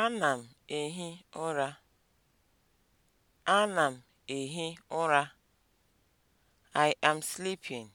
Ana m ehi ụra. Ana m ehi ụra. I am sleeping.